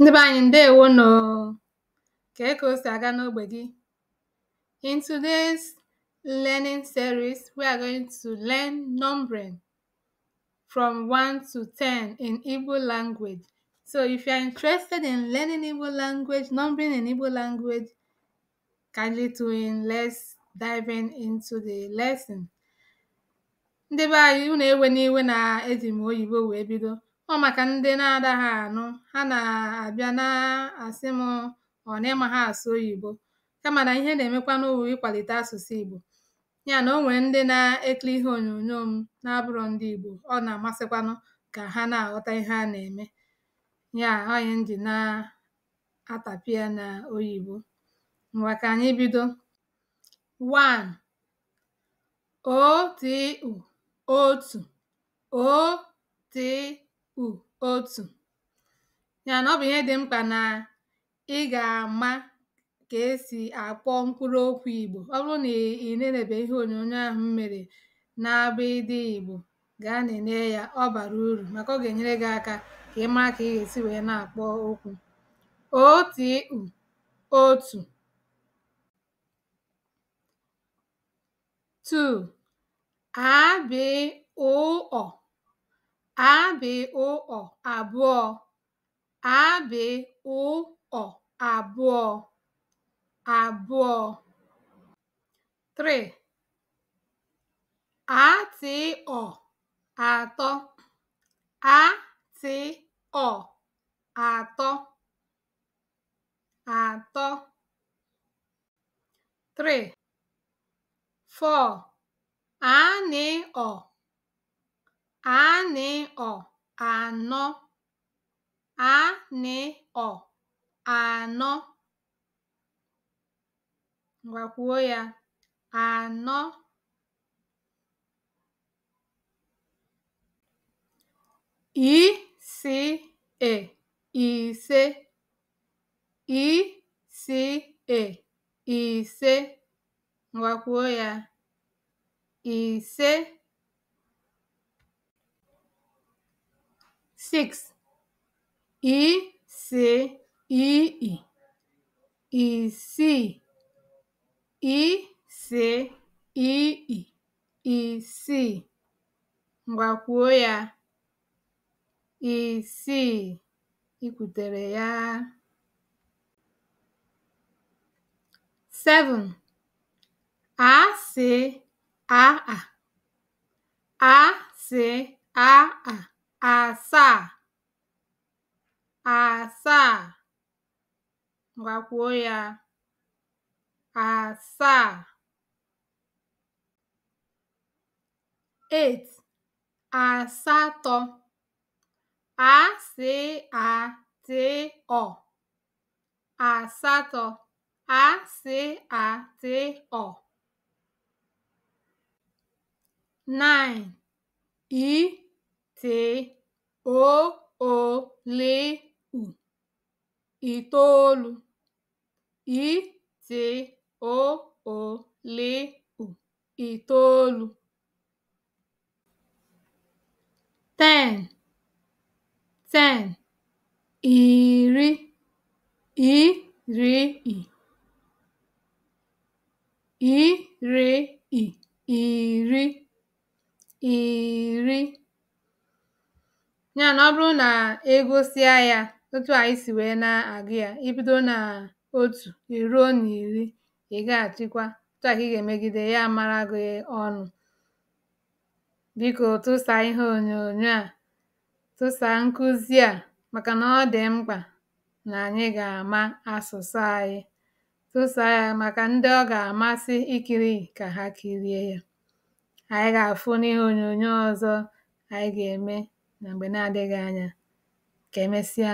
ndị be anyị ǹdeèwonù kee kà o sì aga n'ogbè gị in today's learning series we are going to learn numbering from 1 to 10 in Igbo language so if you are interested in learning Igbo language numbering in Igbo language kindly tune in let's dive into the lesson ndị be anyị unu ewe n'iwe na eji m oyibo wee bido ọ maka ndị na-adaghị anụ ha na-abịa na-asị m ọ na ịma ha asụ oyibo kama na ihe na emekwa n'ụwa ịkwalite asụsụ Igbo ya na o nwere ndị na-ekiri ihe onyonyo m na-abụrọ ndị Igbo ọ na-amasịkwanụ ka ha na-aghọta ihe a na-eme ya onye m ji na atàpị ya na oyibo ngwa anyị bido 1 o t u kpù otu. ya na ọ bụ ihe dị mkpa na ị ga-ama ka esi akpọ mkpụrụ okwu Igbo. ọ bụrụ na ị nenèbè ihe onyonyo ahụ mere na abụ ịdị Igbo, gaa na-enye ya ọ bara uru, maka ọ ga-enyere gị aka ka ị maa ka ị ga-esi wee na akpọ okwu òotìikpù otù "'aa''bị̀''ụ̀''ọ̀ àbụọ̄ "'aa''bị̀''ụ''ọ̀ àbụọ̄ àbụọ̄ "'three" "'aatị̀ị''ọ̀ àtọ "'aatị̀ị''ọ̀ àtọ àtọ "'three" "four" "'aanị̀ị''ọ̀ e “'ànị̀ọ̀ (anọ) ‘ànị̀ọ̀ (anọ) Ngwakwuo ya, ànọ ise ise ìsiì ise Ngwakwuo ya, ise six e c i i e c e c i i e c, kwuo ya c, i kwutere ya seven a c a a a c a a asaasagbakwuo asaa 8t asatọ asịarta asatọ asịarta 9 I! t o o l u itoolu i t o o l u itoolu ten ten iri iri i iri i iri iri ya na ọ bụrụ na egosịa ya otu anyị si wee na agụ ya ibido n'otu nà otù na iri ị ga ị̀ otu à ị ya amara gị ọnụ biko tụsa ihe onyonyo a tụsa nkụzi a maka na ọ dị mkpa na anyị ga-ama asụsụ anyị tụsa ya maka ndị ọ ga-amasị ikiri ka ha kirie ya anyị ga-afụ n'ihe onyonyo ọzọ anyị ga-eme. na mgbe na-adịghị anya. Ka e mesịa